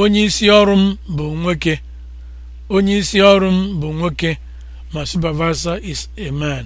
onye isi ọrụ m bụ nwoke onye isi ọrụ m bụ nwoke ma supervisor is a man